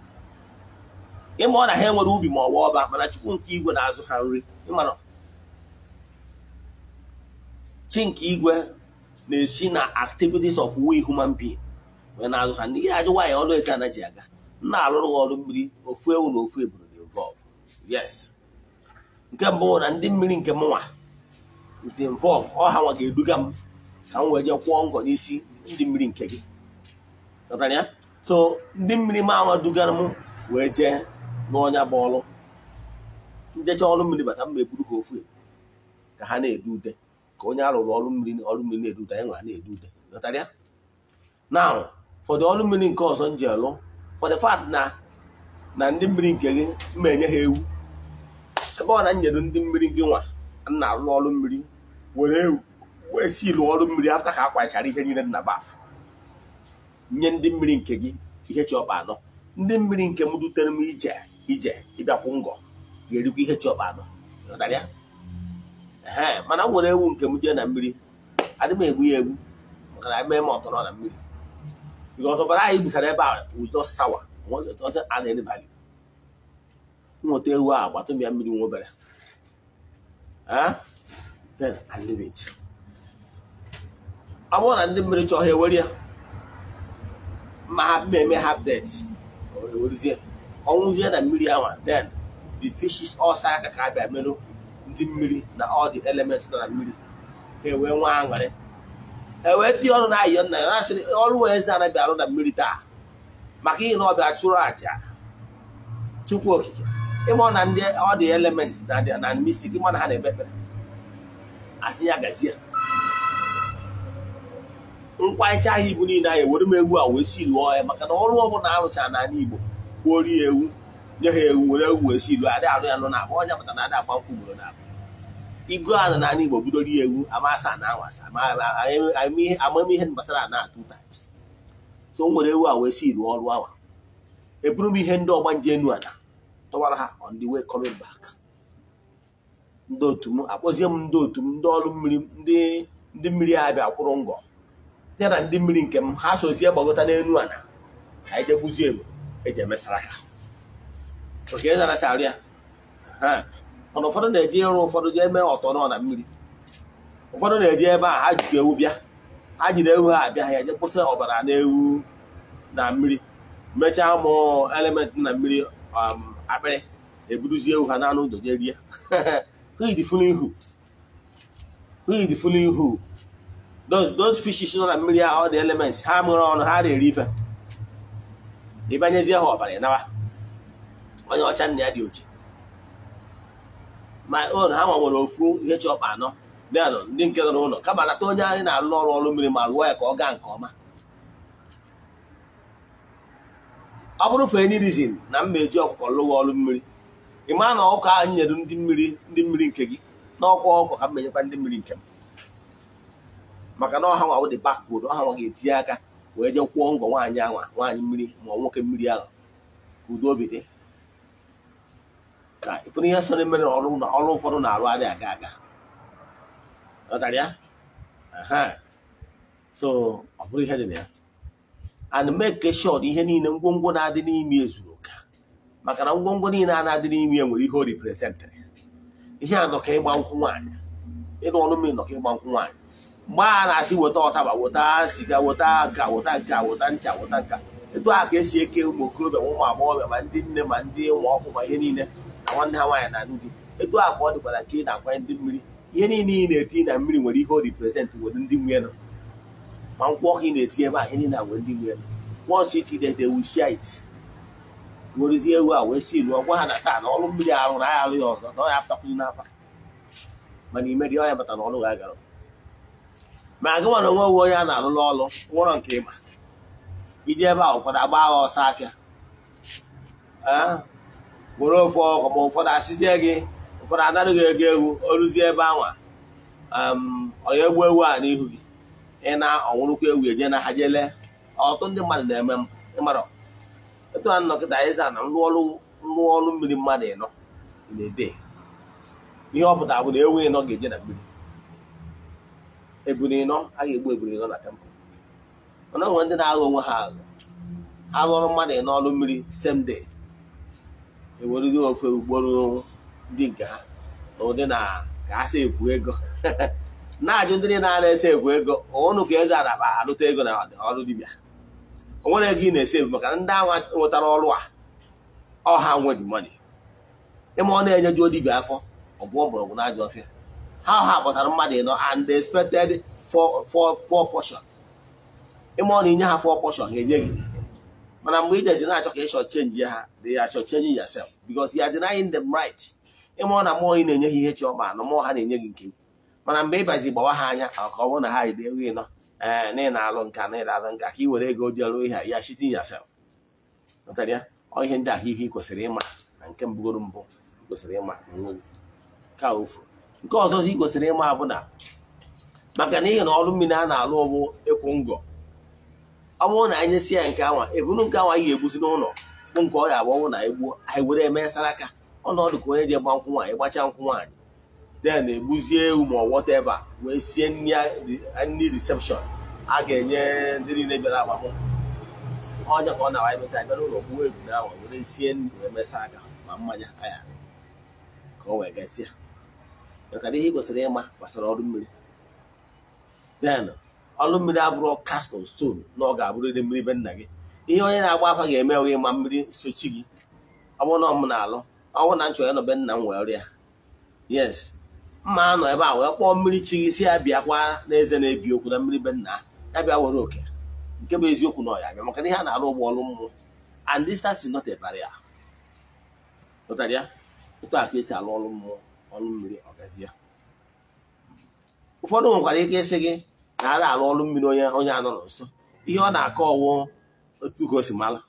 ịma ọ na ha enwere ubi ma ọ bụ ọba mana chukwu nke igwe na-azụ ha nri ịmara chi nke igwe na-esi na activities of we human being wee na-azụ ha ndị gị ajụ nwaanyị ọlụ ezi anaghị aga m na alụrụ ha ọrụ mmiri ofu ewu na ofu eburu na involve yes nke mbụ na ndị mmiri nke m nwa dị involve ọha nwa ga-eduga m ka m wee jee kwụọ ngọ n'isi ndị mmiri nke gị ya so ndị mmiri m anwa dugara m wee jee n'ọnya bụ ọlụ njecha ọrụ mmiri bata m eburu ha ofu ka ha na-edu ude ka onye arụrụ ọrụ mmiri ọrụ mmiri na-edu ude anyị na-edu ude ya na ụfọdụ ọrụ mmiri nke ọzọ m ji alụ for the na na ndị mmiri nke gị m enye ha ewu ebe ọ na nyedo ndị mmiri gị nwa na-alụ ọrụ mmiri were wee si lụọ ọrụ mmiri afta ka akwachara ihe niile na baf nye ndị mmiri nke gị ihe chi anọ ndị mmiri nke m dutere m ije ije ịbịakwụ ngọ ga-erikwa ihe chi ọkpa anọ ee mana m were ewu nke m jee na mmiri adị m egwu ya egwu maka na mee m ọtọrọ na mmiri bikọs ọbara anyị gbusara ebe a udo sawa a na-elebagị nweta ewu a gbatụm ya mmiri nwa obere then I ọ bụrụ na ndị mmiri chọọ ha ewere ya ma ha mmemme ha det ewerizie ọnwụzie na mmiri ahụ then the fishes ọsa aka ka abịa merụ ndị mmiri na all the elements nọ na mmiri ha ewee nwa aṅụrị ha wee tinye ọrụ na ayọ nna ya na-asịrị ọrụ wee eze anaghị arụ na mmiri taa maka ihe na ọ chụrụ aja chukwu okike ịma na ndị ọ dị elements na mystic ịma na ha na-ekpe ekpere asị ya Nkwa mkpaịcha ahụ ibu niile anyị ewere m ewu a wee si lụọ ya maka na ọrụ ọbụla arụchara n'ala Igbo gbuori ya ewu nye ha ewu were ewu wee si lụọ adị arụ ya nụ na akpa ọnya na adị agba nkwụ ugboro na abụ igo a na n'ala Igbo bidoro ya ewu amasa na awasa amamihe gbasara ana atụ times so m were ewu a wee si lụọ ọrụ awa eburu m ihe ndị ọgbanje enu ala tọwara ha on the way coming back ndị otu m akpọzie m ndị otu m ndị ọrụ mmiri ndị ndị mmiri abịa kwụrụ ngọ ya na ndị mmiri nke m ha sozie gbagota n'elu ala ka anyị jegbuzie egbe eji emesara aka oke zarasị arụ ya na ụfọdụ na-eji ịrụ ụfọdụ jee mee ọtọ nọ na mmiri ụfọdụ na-eji ebe a ha jikọ ewu bịa ha jiri ewu ha abịa ha eje kwụsị ọbara na ewu na mmiri mechaa mụọ elementị na mmiri um, akpịrị eburuzie ha n'anụ ụzọ jee rie ihu hidfulu ihu those fishes nọ na mmiri all dị elements ha mụrụ ọnụ ha na-eri ife ịbanyezie ha ọbara ịnaba onye ọcha nna ya dị oche. ma ụlọ ha nwere ofu ihe chọpa anọ dị anọ ndị nke nọ n'ụlọ kama nata onye anyị na-alụ ọrụ ọrụ mmiri ma lụọ ya ka ọ gaa nke ọma ọ bụrụ for any reason na m na-eji ọkụkọ lụwa ọrụ mmiri ị maa na ọkụkọ ahụ nyere ndị mmiri ndị mmiri nke gị na ọkụ ọkụkọ ka m menyekwa ndị mmiri nke m maka na ọha nwa dị bakbod ọha nwa ga-etinye aka wee jee kwụọ ngwọ nwaanyị anwa nwaanyị mmiri ma ọ nwoke mmiri ahụ ka udo obi dị ka ịfụrụ ihe sọrọ mmiri mere na ọrụ ụfọdụ na-arụ adịghị aga aga ọtara ya so ọ bụrụ ihe dị na ya and make sure ihe niile ngwongwo na-adị n'ime ezuru oke maka na ngwongwo niile a na-adị n'ime ya nwere ihe o ripresentarị ihe a nọka ịgba nkwụ nwaanyị ịnụ ọnụ mmiri nọka ịgba nkwụ nwaanyị mgbe a na-asị weta ọtaba weta siga weta nka weta nka weta ncha weta nka etu a ka esi eke ụmụ okorobịa ụmụ agbọghọbịa ma ndị nne ma ndị nwa ọkụ ma ihe niile na nwanne ha nwaanyị na ndị etu a ka ọ dịkwara nke ị na-akwanye ndị mmiri ihe niile ị na-eti na mmiri nwere ihe o riprezentị nwere ndị nwunye I'm walking the theater any na when they were. Once it is they will share it. What is here? Well, we see. Well, what understand? All of me are on. I are yours. No, I have to clean up. Mani meri oya bata n'olu ga gara. Ma aga mana nwa uwe ya na-alụ n'ọlụ One nke ịma. Ide ebe For that, agba agha ọsọ afịa. Were all for ma ụfọdụ asịzie gị ụfọdụ anaghị ego egwu o ruzie ebe anwa. Ọ um. egbu ewu a n'ihu gị. Ịna na ọnwụrụkwa ewu enye na ha jele ọtụtụ ndị mmadụ na-eme ịmarọ etu a nnọkịta anyị zaa na nrụọrụ nrụọrụ mmiri mmadụ ịnọ na-ede ihe ọ pụtara bụ na ewu ịnọ ga-eje na mmiri eburi ịnọ a ga-egbu eburi ịnọ na tempụl mana ọ nwere ndị na agha onwe ha aghọ ha lụrụ mmadụ ịnọ ọrụ mmiri same day ewerụzi ofe ugboro ndị nke ha na ụdị na ka a sị ekwu ego na-ajụ ndị na-ana ese egwu ego ụnụ ka eze adaba arụta ego na ọrụ dibịa o nwere ego ị na-ese egwu maka ndị ahụ nwetara ọrụ a ọha nwedi mmadụ ịma ọ na-enye juo dibịa afọ ọ bụ ọbụrọgwụ na ajọ ọfịa ha ọha pụtara mmadụ ịnọ and they expected four portion ịma ọ na inye ha four portion ha enye gị mana mgbe i jezi na-achọ ka ị short change ha they ya short chenji yourself because ya are denying them ịma ọ na mmụọ ị na-enye ha ihe chi ọma na mmụọ ha na-enye gị nke ukwu mana mgbe ịbazi gbawa ha anya ka ọ bụrụ na ha ide ego ịnọ ee eh, na ị na-alụ nka na ịlalụ nka ka ị were ego dị ọrụ ihe ya shitin yasef ọ ihe ndị ahụ ihe ị kwesịrị ịma na nke mbụgoro mbụ ị kwesịrị ịma na ofu nke ọzọzi ị kwesịrị ịma bụ na maka n'ihi na ọrụ mmiri a na-alụ ụbụ ịkwụ ngọ ọ bụrụ na anyị nyesi ya nke anwa ebunu nke anwa anyị ga-egbuzi n'ụlọ bụ nke ọ ga na egbuo anyị were eme sara aka ọnọdụ ka onye ji gba nkwụ nwaanyị gbacha nkwụ nwaanyị Den egbuzie ewu ma wọteva wee sie nri reception a ga-enye ndị niile bịara agbamnkwụ ọnya ka ọ na-awa emeta bịara ụlọ gbuo egwu na awa were sie nri wee mesa aka ma mmanya aya ka o wee gasịa maka na ihe kwesịrị ịma gbasara ọrụ mmiri Den ọrụ mmiri abụrụ cast on stone na ọ ga-abụrịrị mmiri be nna gị ihe onye na-agba afa ga-eme onye ma mmiri sochi gị ọ bụrụ na ọ m alụ ọ bụrụ na nchọ ya nọ be nna m wee ọrịa yes mma nọ ebe a wee kpọọ mmiri chi gị si ya bịa kwa n'eze na-ebi okwu na mmiri be nna ya bịa were oke nke bụ eziokwu na ọya bịa maka na ihe a na-alụ ụgbọ ọrụ mmụọ and distance is not a barrier ụtara ya otu a ka esi alụ ọrụ mmụọ ọrụ mmiri ọgazie ụfọdụ nwekwara ike ịsị gị na a alụ ọrụ mmiri onye onye anọrọ nso ihe ọ na-akọ ọwụ otu ka o si mara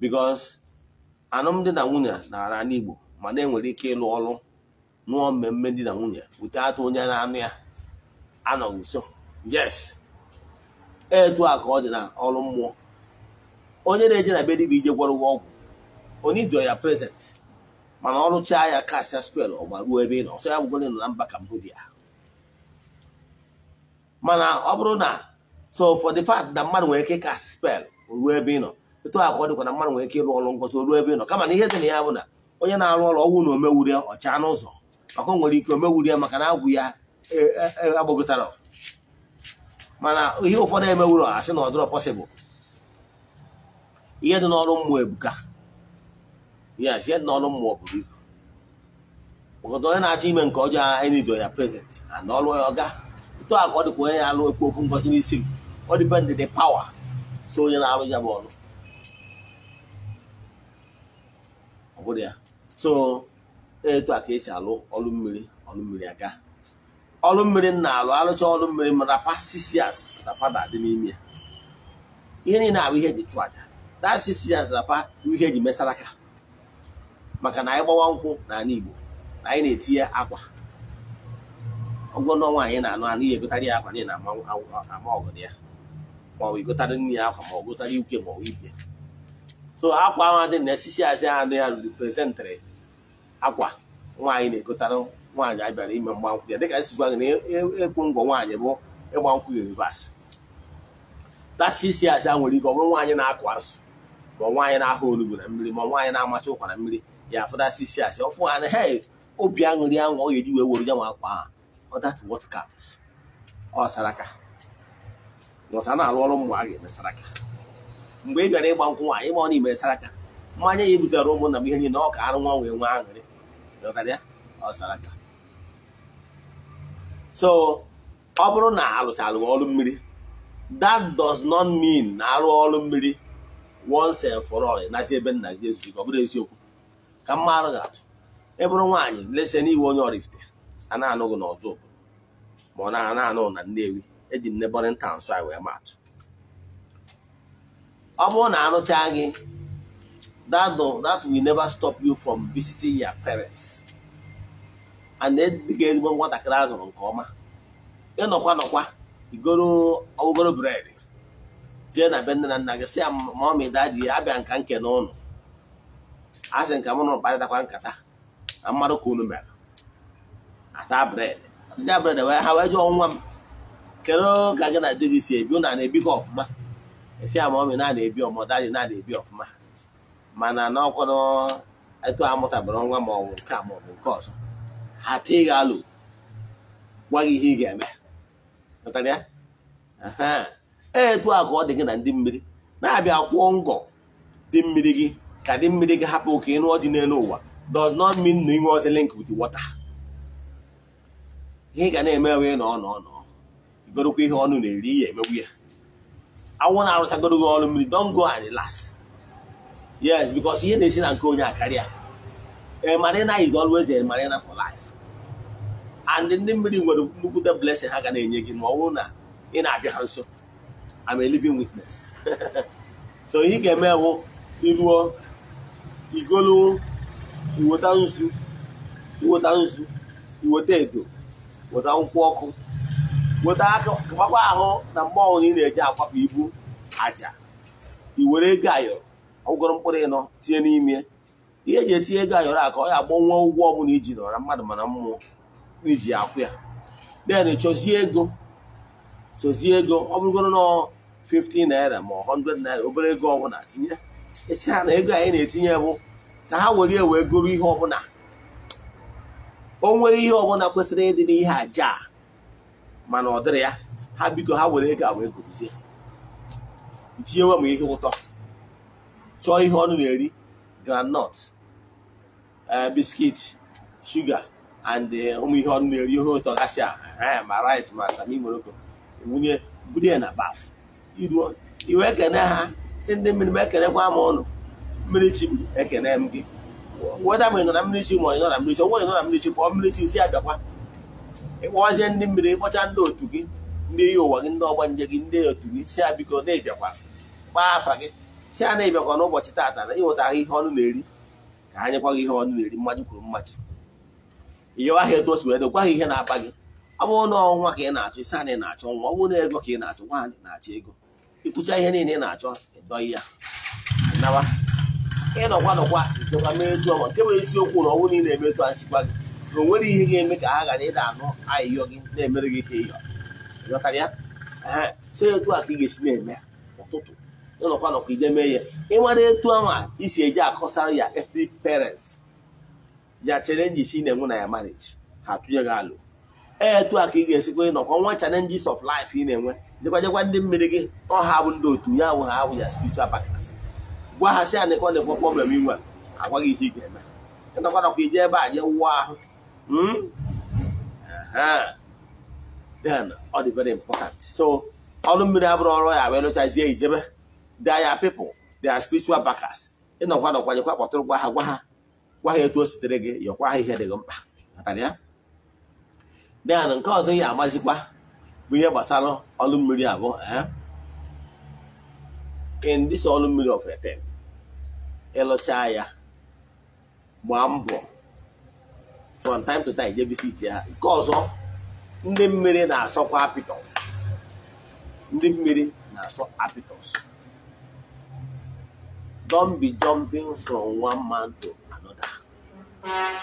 because alụmdi na nwunye na n'igbo ma na enwere ike ịlụ ọrụ nụọ mmemme di na nwunye wute atụ onye na-anụ ya anọghị nso yes etu a ka ọ dị na ọrụ mmụọ onye na-eje na be bụ ije gwọrọ ụgwọ ọgwụ onye dịọ ya prezent mana ọrụchaa ya kasịa spel ọgba ruo ebe ị nọ ọsọ ya bụgoro nọ na mba Cambodia mana ọ bụrụ na so for the fact na mmadụ nwere ike kasị spel ruo ebe ị nọ etu a ka ọ dịkwa na mmadụ nwere ike ịrụ ọrụ ngosi ruo ebe ị nọ kama na ihe dị na ya bụ na onye na-arụ ọrụ ọgwụ na omewure ọcha n'ụzọ ọkụ nwere ike omewuri ya maka na agwụ ya e, e, e, agbagotara mana ihe ụfọdụ emewuro asị na ọdụrọ pọsịbụl ihe dị n'ọrụ mmụọ ebuka yes ihe dị n'ọrụ mmụọ buru ibu maka onye na-achọ ime nke ọjọọ anyị nido ya prezent na ọrụ ya ọga etu a ọ dịkwa onye na-alụ ekwu okwu ngosi n'isi m ọ dịpendị dị pawa so onye na-arụ ya bụ ọrụ ọ bụrụ ya so etu a ka esi alụ ọlụ mmiri ọlụ mmiri aga ọlụ mmiri m na-alụ alụcha ọlụ mmiri m rapasisias rapa na-adị n'ime ya ihe niile abụ ihe eji chụọ aja dasisias na bụ ihe eji mesara aka maka na anyị gbawa nkwụ n'ala Igbo na anyị na-etinye akwa ọgwọ n'ọnwa anyị na-anụ anụ ihe egotarị ya akwa na-ama ọgụ ya ma ọ bụ igotarị nne ya akwa ma ọ gotarị ikwe ma ọ bụ ibe so akwa ahụ adị na esisi asị ahụ dị ya reprezentịrị akwa nwaanyị na-egotara nwaanyị anyị bịara ime mgbankwụ ya dịka esi gwa gị na e, e, ekwu ngwọ nwaanyị bụ ịgba nkwụ ya rivas tasisi asị a nwere ike ọ bụrụ nwaanyị na-akụ azụ ma nwaanyị na-ahụ olugbu na mmiri ma nwaanyị na-amacha ụkwa na mmiri ya afụdasisi asị ọfụ ha na he obi aṅụrị aṅụ ọ ga-eji wee were ya nwa akwa ọ datụ what counts ọ saraka ọsa na arụ ọrụ mmụ a ga-eme saraka mgbe ị bịara ịgba nkwụ nwaanyị ma ọ na imere mmanya ya ebutere ụmụnna m ihe niile ọ ka arụ nwa wee nwee aṅụrị so ọ bụrụ na alụchalụ ọrụ mmiri that does not mean na arụ ọrụ mmiri once and for all nazi ebe nna gị ezughị ọ eziokwu ka mma arụ ga-atụ e bụrụ nwaanyị lese n'iwe onye Oraifite a na-anụghị n'ọzọ obodo ma ọ na-anụ na Nnewi eji nnebọrịnta nso anyị wee ma atụ ọ bụrụ na arụchaa gị that, do, that will never stop you from visiting your parents and then dị ga-erigbo nwatakịrị a nke ọma ịnọkwa nọkwa igoro ọgụgoro bred jee na be na nna gị si ya mami daji abịa nka nke n'ụlọ a sị nka mụ na mkparịtakwa nkata na mmadụ ka unu mere ata bred atịja bred wee ha wee jụọ nwa m kedu ka gị na di si ebi ụna na ọfụma esi ya na-ebi ọmọ na-ebi ọfụma mana n'ọkwado etu amụtabara nwa ma ọ bụ nke a ma nke ọzọ ha tee gị alụ gwa gị ihe ị ga-eme e, etu a ka ọ dị gị na ndị mmiri na-abịa kwụọ ngọ dị mmiri gị ka dị mmiri gị hapụ ka ịnụọ dị n'elu ụwa does not mean na inwe ọzọ link with water ihe ị ga na-eme wee nọ nọ nọ igorokwa ihe ọnụ na-eri ya emegbu ya anwụ na-arụchagoro gị ọrụ mmiri dongo go and las. yes because ihe na-esi na nke onye akarịa a eh, marina is always a marina for life and ndị mmiri nwere nnukwute blessing ha ga na-enye gị ma ọ bụrụ na ị na-abịa ha nso I'm a living witness so ihe ị ga-eme bụ iruo igolu iweta nzu iweta nzu iweta edo weta nkwụ ọkụ weta gbakwa ahụ na mgbe ọhụrụ ị na-eji akwapụ ibu aja iwere were ego ayọrọ ụgwọrọ mkpụrụ ịnọ tinye n'ime ihe eji etinye ego ayọrọ a ka ọ ya agbọnwa ụgwọ ọbụla iji nọrọ mmadụ mana mmụọ iji akwụ ya den chọzie ego chọzie ego ọ bụrụgoro na 50 naira ma 100 naira obere ego ọbụla tinye esi ha na ego anyị na-etinye bụ ka ha were wee goro ihe ọbụla o ihe ọbụla kwesịrị ịdị n'ihe aja a mana ọ dịrị ya ha biko ha were ego a wee gozie tinyewe m ihe ụtọ chọọ ihe ọnụ na-eri groundnut eh, biskit shuga and eh, ụmụ ihe ọnụ na-eri ihe ụtọ gasị ma rice ma tami moroko wunye bulie na baf iruo iwe ekene ha si ndị mmiri m ekenekwa m ọnụ mmiri chi m ekene m gị weda ma ị nọ na mmiri chi ma ọ nọ na mmiri chi ọnwa ị nọ na mmiri chi kpọọ mmiri chi si abịakwa ịkpọwazie ndị mmiri ịkpọcha ndị otu gị ndị iyi ụwa gị ndị ọgbanje gị ndị otu gị si abiko na-ebiakwa kpaa afa gị si a na-ebịakwa n'ụbọchị tata na ịnweta ahụ ihe ọnụ na-eri ka anyị nyekwa gị ihe ọnụ na-eri mmaji kwuru mmaji ịyọwa ha etu o si wee dokwa ha ihe na-akpa gị ọ bụrụ na ọnwa ka ị na-achọ isi ana ị na-achọ nwa ọ bụrụ na ego ka ị na-achọ nwa na-achọ ego ịkpụcha ihe niile ị na-achọ ịdọghị ya nawa ịnọkwa nọkwa dọkwa mee etu ọma nke bụ eziokwu na ọnwụ niile eme etu a gị na o nwere ihe ga-eme ka ha ghara ịda anụ ahịhịọ gị na-emere gị ka ịyọ ịghọtara ya so etu a ka ị ga-esi na-eme ụtụtụ ụlọkwa nọkwa ije mee ihe ịmara etu ahụ a isi eji akọsa ya ethnic parents ya challenges ị na-enwe na ya marriage ha tụnye gị alụ e, etu a ka ị ga-esikwa ịnọkọ nwa challenges of life ị na-enwe jekwa ndị mmiri gị ọha bụ ndị otu ya awụ ha abụ ya spiritual partners gwa ha si anịkọ na-ekwe problem inwe agwa gị ihe ị ga-eme ịnọkwa nọkwa ije ebe a je wụọ ahụ hmm? then ọ dị very important so ọrụ mmiri abụrụ ọrụ ya wee lụchazie ijebe they are people they are spiritual backers ịnọkwa n'ọkwa nọkwanyekwa kpọtụrụ gwa ha gwa ha gwa ha etu o sitere gị yọkwa ha ihe dị gị mkpa dan nke ọzọ ya amazikwa bụ ihe gbasara ọlụ mmiri abụọ eh? in this ọlụ mmiri of eten ịlụchaa ya gbaa mbọ from time to time jebisiti ha nke ọzọ ndị mmiri na-asọkwa apitos ndị mmiri na-asọ apitos Don't be jumping from one man to another.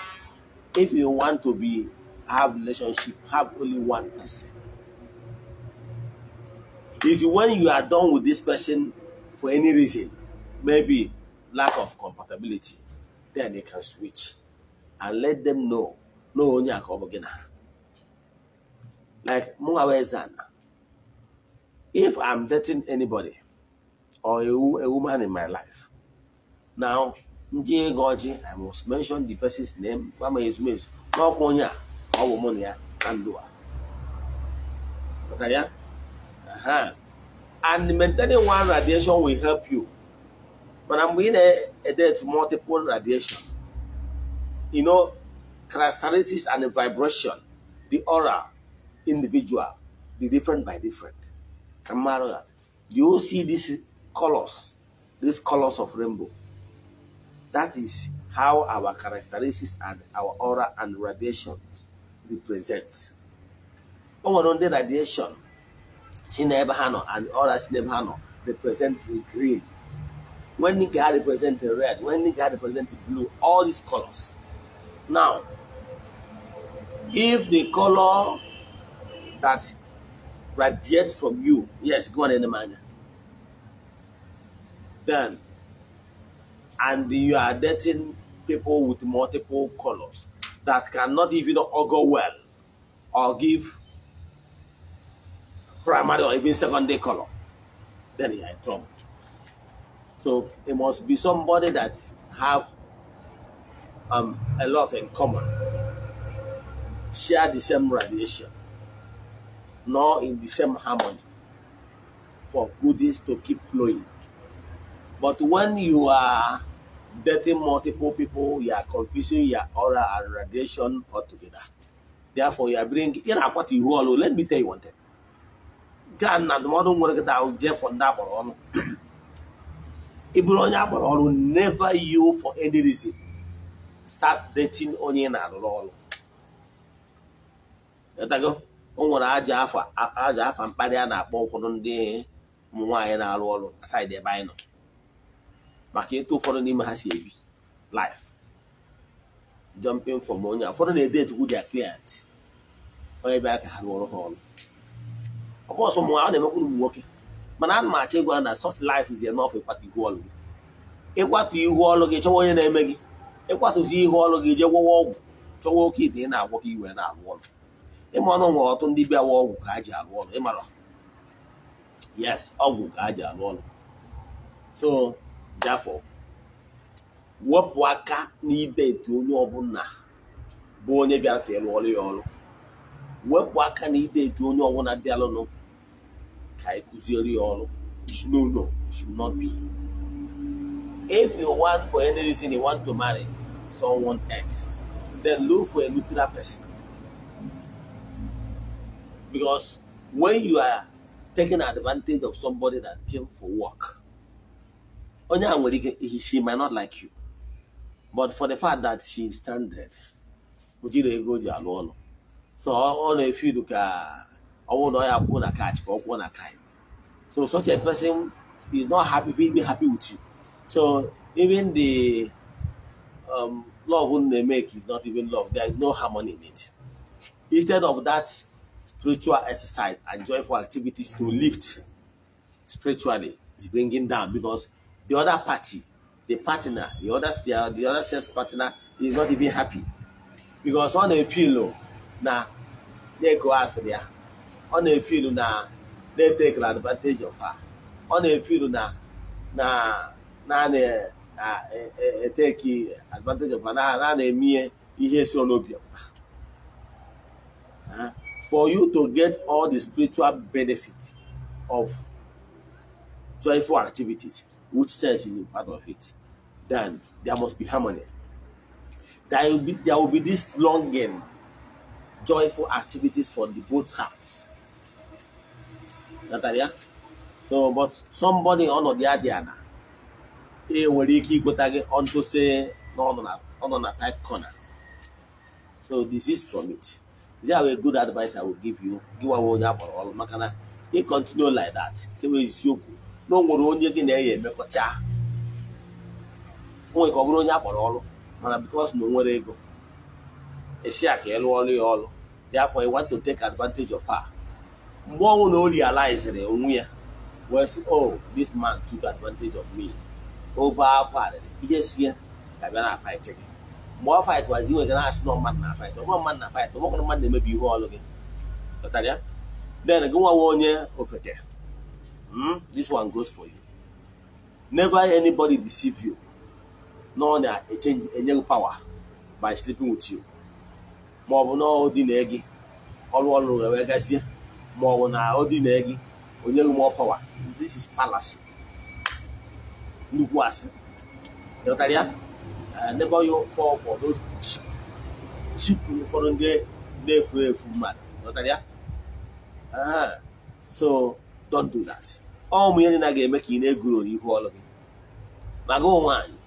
If you want to be have relationship, have only one person. If when you are done with this person for any reason, maybe lack of compatibility, then you can switch and let them know. No, only again. Like Mungawezana. If I'm dating anybody or a, a woman in my life, now, ndị ego I must mention the person's name gbama ezumezu n'ọkwa onye a ọ bụ mụ na ya na ndụ a ya and maintaining one radiation will help you but I'm going to add multiple radiation you know characteristics and vibration the aura individual the different by different Remember that do you see these colors these colors of rainbow That is how our characteristics and our aura and radiations represent. O radiation si n'ebe ha nọ and aura si n'ebe ha nọ represent green. When nke ha represent red, when nke ha represent blue, all these colors. Now, if the color that radiates from you, yes, go on in the manner, then and you are dating people with multiple colors that cannot even go well or give primary or even secondary color, then you are in trouble. So it must be somebody that have um, a lot in common, share the same radiation, nor in the same harmony for goodies to keep flowing. But when you are dating multiple people, you are confusing your aura and radiation altogether. Therefore, you are bringing, you know what you Let me tell you one thing. gaa na ndụmọdụ nwere gị ahụ jee for ndị agbara ọrụ ị bụrụ onye agbara ọrụ never you for any reason start dating onye na-arụrụ ọrụ etago o nwere aja afa mkparị a na-akpọ ụfọdụ ndị ụmụ nwaanyị na-arụ ọrụ na saịdị ebe anyị nọ maka ịtụ ụfọdụ n'ime ha si ebi lif jọmpịn fọm onye ụfọdụ na-ede etukwu dia client onye bịa ka ha rụọrọ ha ọrụ ọ bụ ọ na-emekwa ụmụ nwoke mana ana m achọ ịgwa na lif life is enough ịkwata ihu ọlụ gị ịkwatụ ihu ọlụ gị chọwa onye na-eme gị ịkwatụzi ihu ọlụ gị jee gwọwa ọgwụ chọwa oke ite ị na-agwọ ka iwe na-arụ ọrụ ịma ọnụ nwere ọtụ ndị bịawa ọgwụ ka ha ji arụ ọrụ ịmara yes ọgwụ ka ha ji arụ ọrụ so Jafọ wepụ aka etu onye ọbụla bụ onye bịara ọrụ ya ọrụ wepụ aka etu onye ọbụla bịalụnụ ka anyị kụziere ya ọrụ no you should not be if you want for any reason you want to marry someone else then look for a neutral person because when you are taking advantage of somebody that came for work onye a nwere ike she might not like you but for the fact that she is stranded o jiri ego o ji alụ ọlụ so ọ na-efidu ka ọ na ọ ya kwuo na catch ka ọ na kind so such a person is not happy be happy with you so even the um, love wey na make is not even love there is no harmony in it instead of that spiritual exercise and joyful activities to lift spiritually is bringing down because the other party, the partner, the other, the, the other sex partner is not even happy. Because on a pillow, oh, na they go ask there. Ah, on a pillow, oh, na they take advantage of her. one a feel oh, na na na na eh, eh, take advantage of her. Na na emie eh, ihe si n'obi ah, for you to get all the spiritual benefit of joyful activities which sense is a part of it, then there must be harmony. There will be, there will be this longing, joyful activities for the both hearts. Natalia? So, but somebody on the Adiana, e nwere ike ikpota gị onto se na ọ nọ na tight corner. So this is from it. There are good advice I will give you. Give Gịwa onye akpọrọ ọrụ maka na ị continue like that. Kewe eziokwu. na o nwere onye gị na-enye emekọcha onwe ka ọ bụrụ onye akpọrọ ọrụ mana bikos na o nwere ego esi a ka ịlụ e ọrụ ya ọrụ therefore you want to take advantage of her mgbe ọnwụ na o rializiri onwe ya wesi sị oh, this man took advantage of me obe akwa arịrị ihe si ya ga na fight gị mgbe ọ fight wazi nwere na-asị na mmadụ na fight ọgba mmadụ na fight ọgbakọrọ mmadụ na-emebi ihe ọrụ gị pụtara ya then gị nwawa onye ofeke hmm? this one goes for you never anybody deceive you no na change enye power by sleeping with you ma ọ bụ na ọ dị na gị ọrụ ọrụ wee gazie ma ọ bụ na ọ dị na gị onye gị more power this is palace nnukwu asị ịghọtara ya uh, never you fall for those cheap cheap ụfọdụ ndị na-efu efu mmadụ ịghọtara ya uh-huh. so don't do that ọ ụmụ ihe na ga-eme ka ị na-egurori ihu ọlụ gị maka nwaanyị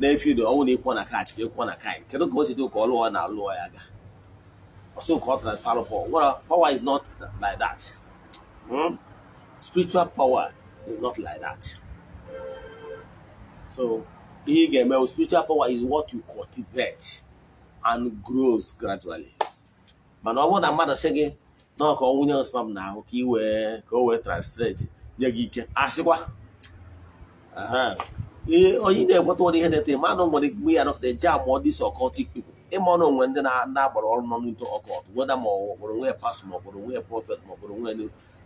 na-efi ụdị ọnwụ na ịkwọ na kaachị ka ịkwọ na kaị kedu ka o si dị ka ọlụọ na alụọ ya ga ọsọ ka ọ transfer power well power is not like that hmm? spiritual power is not like that so ihe ị ga-eme spiritual power is what you cultivate and grows gradually mana ọ bụrụ na mmadụ sị gị nọọ ka ọ wụnye spam na ahụ ka ị ka o wee translate nye gị ike asịkwa ee onye na-ekweta ụdị ihe na-ete ma na nwere mgbe ya nọkọta eje amụọ ndị so ọkọtik pipụl ịma ọnụ onwe ndị agbara ọrụ ọkọt weda ma ọ nwe pas ma prọfet ma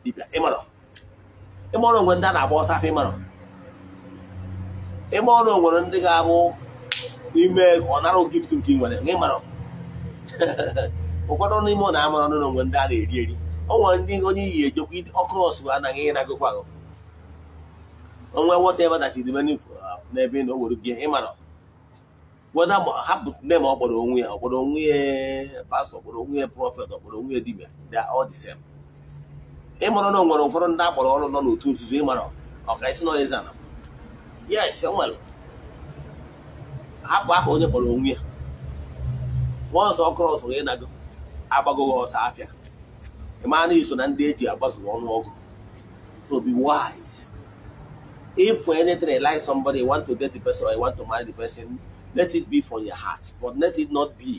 dibịa ịma ọnụ onwe ndị a na-agba ọsọ afọ ịma abụ ọ nara ụfọdụ n'ime na amara ọnụ na ndị a na-eri eri o nwere ndị onye iyi ejekwa ọkrọs anaghị ịnagokwa gụ onwe nweta ebe dachiri menu n'ebe na o gị ịmara weda hapụ nne ma ọ kpọrọ onwe ya ọkpọrọ onwe ya pastọ ọkpọrọ onwe ya prọfet ọkpọrọ onwe ya dibia ịmara na ụfọdụ ndị akpọrọ ọrụ nọ n'otu nzuzo ịmara ọka isi ana yes e aha onye kpọrọ onwe ya agbagoghị ọsọ afịa ịmaa na iso na ndị eji ọnụọgụ so be wise if for anything you like somebody you want to date the person or you want to marry the person let it be from your heart but let it not be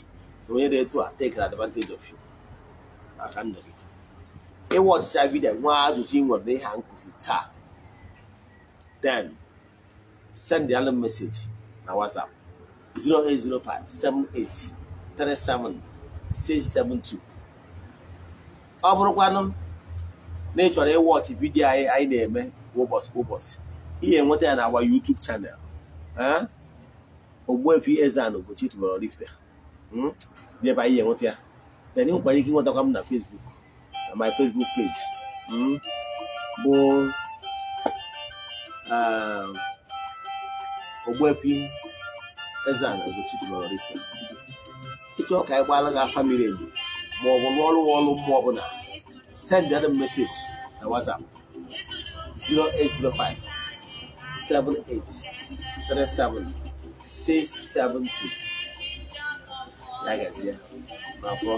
the onye dị etu a take advantage of you maka ndụ gị ịwa ọchịcha vidiyo nwa ajụjụ nwere n'ihe nkụzi taa then send the other message na whatsapp 0805 78 37 672 ọ bụrụkwa na ị ịwọchị vidiyo anyị anyị na-eme kwa ụbọchị kwa ụbọchị ihe nweta ya na agwa YouTube chanel Ogbuefi Eze-Ana Ugochi tubelu Oraifite hmm? debe ihe nweta ya then ị nwekwara ike ịnwetakwa m na Facebook na my Facebook page hmm? bụ ehm, Ogbuefi Eze-Ana Ugochi tubelu Oraifite ịchọ ka anyị gbaara gị afa miri emi ma ọ bụ n'ọrụ nwọrụ mmụọ ọbụla send them message na WhatsApp 0805 37 672 ya gazie na afọ